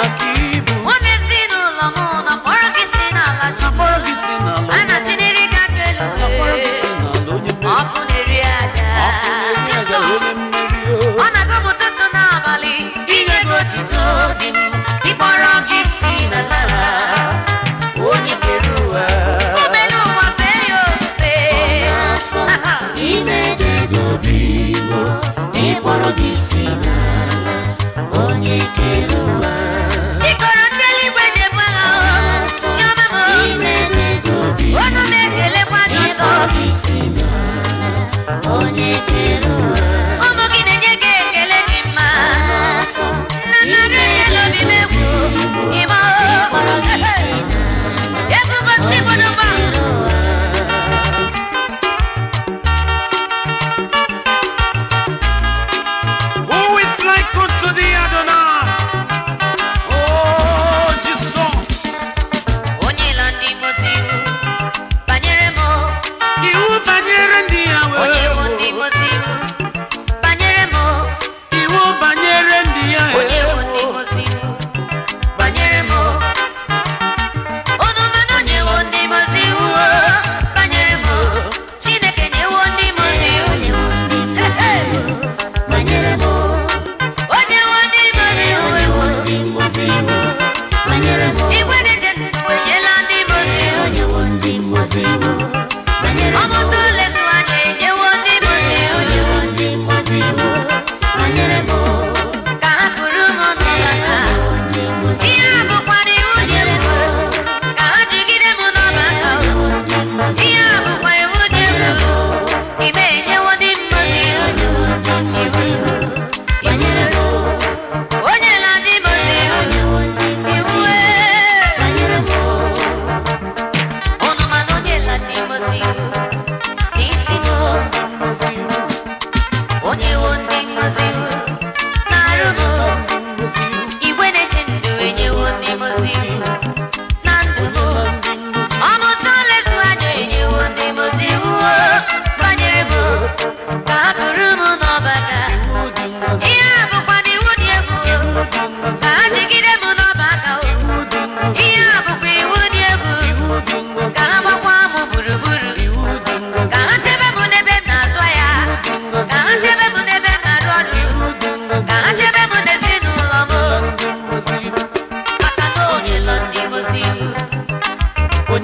aqui. feel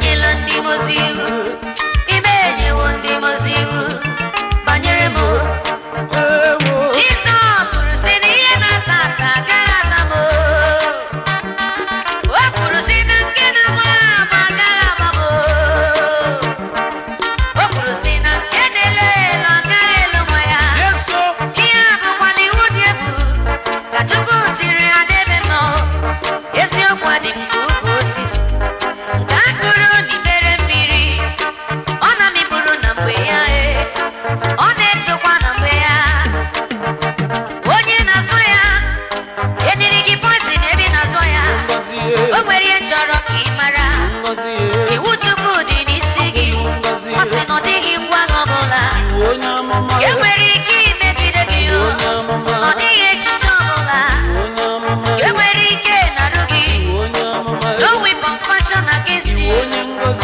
enyela ndị mozi iwu ime ndị mozi iwu banyere m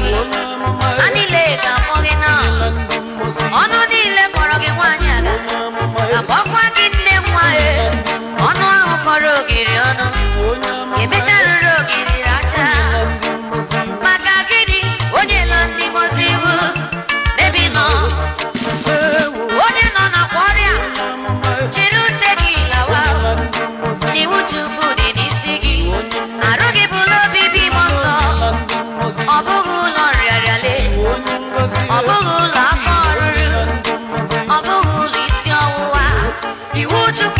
mama, mama.